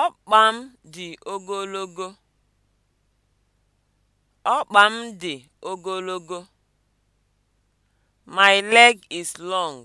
Ọkpa m dị ogologo. Ọkpa m dị ogologo. My leg is long.